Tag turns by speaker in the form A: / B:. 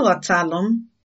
A: aghọtalụ m